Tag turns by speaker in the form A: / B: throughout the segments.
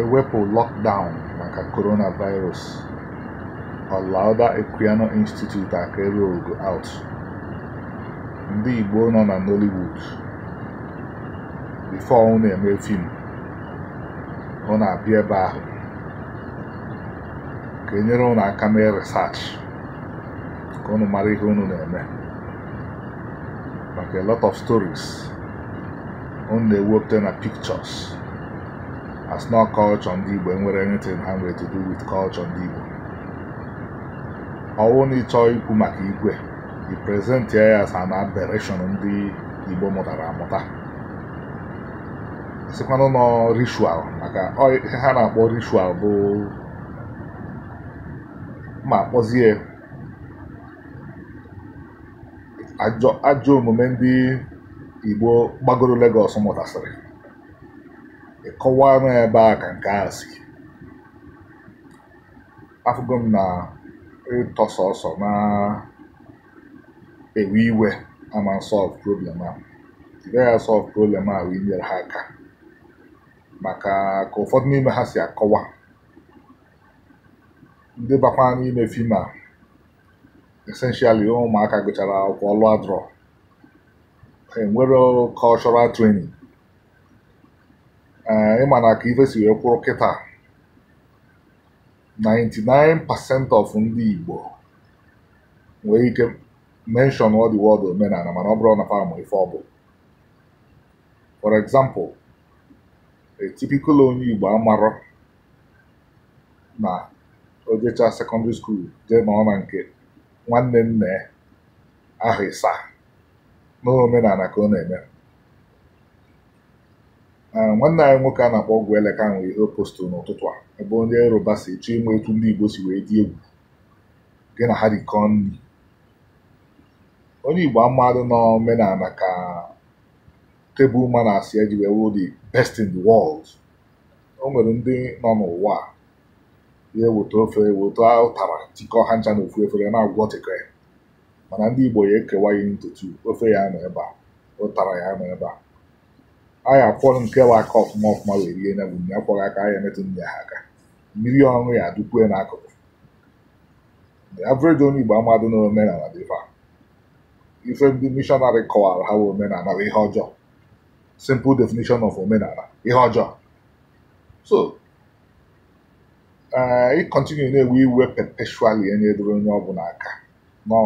A: ewepụ lọkdaụn maka coronavirus, Ọlaudah Equiano Institute akere ogo out, ndị Igbo nọ na Nollywood before na eme fim na abịa ebe ahụ ka enyere ụnụ aka mee resach ka unu mara ihe unu na-eme maka a lot of stories na-ewepụta na pictures has not culture ndị Igbo enwere anything ha nwere to do with culture ndị Igbo ọwụ na ịchọ ikwu maka igwe i present ya as an aberration ndị Igbo mụtara amụta sikwanụ nọ ritual maka ihe ha na-akpọ rishual bụ ma kpọzie ajọ omume ndị Igbo gbagoro Lagos mụtasịrị kọwaa m ebe a ka nke a si afụgo m na ịtọ sọsọ na ewe iwe ama solve problem a gaghị asọlve problem a wee nyere ha aka maka ka ụfọdụ n'ime ha si akọwa ndị bakwa n'ime fim a essentially ụmụaka gụchara akwụkwọ lụa enwere enwero cultural training ịma na ka ife si wee kwụrụ kịta 99% of ndị Igbo nwee ike mention ọ dị wọd omenala mana ọ bụrụ na fa ma ife ọ bụ for example a typical onye Igbo amarọ na ojecha secondary school jee nọ na nke nwanne nne aha ịsa n'omenala ka ọ na-eme nwanne anyị nwoke a na-akpọ ọgwụ eleka nwere ihe postụrụ n'ụtụtụ a ebe onye Yoruba si chọ ịma etu ndị Igbo si wee dị egwu gị na ha dịkọ nri onye Igbo amadụ n'omenala ka tebụl ma na-asị eji wee wụrụ the best in the world o nwere ndị nọ n'ụwa ya eweta ofe eweta ụtara tikọ ha ncha na ofu efere na-agwọtịkọ ya mana ndị Igbo ya ekewa ihe ntutu ofe ya nọ ebe a ụtara ya nọ ebe a anyị akwọrọ nke bụ aka ọfụma ọfụma wee rie na bụ mmiri akwọghị aka anyị emetụ ndị ha aka mmiri ọrụ ya adụkwue n'akụkụ average onye Igbo amadụ na omenala dị dịfa ife ndị mishọnarị kọwara ha omenala bụ ihe ọjọọ simple definition of omenala ihe ọjọọ so eh, ị kọntinu na-ewe iwe perpetually enye doro onye ọbụla aka nọ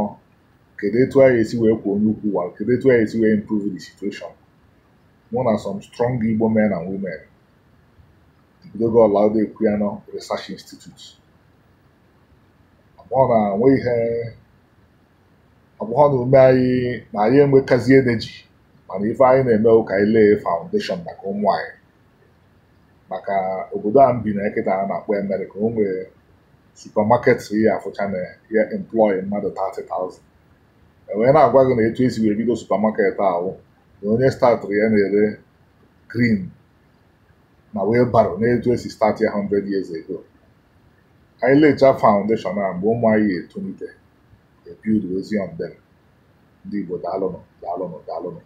A: kedu etu anyị esi wee kwuo onye ukwu wa kedu etu anyị esi wee improve the situation mụ na some strong Igbo men and women bidogo Olaụda Ekwuano Research Institute ọgbọghọ na ume anyị na anyị enwetazi ji mana ife anyị na-eme ụka ile foundation maka ụmụ anyị maka obodo a m bi na nkịta a na-akpọ Amerịka o nwere supamaket ya afụcha na ya employ mmadụ 30,000 e na-agwa gị na etu esi wee bido supamaket ahụ onye statụrụ ya na-ere grin na wheelbarrow na-etu esi start ya 100 years ago anyị lecha foundation a mgbe ụmụ anyị etolite ebiudu ozi on ndị Igbo daalụnụ daalụnụ daalụnụ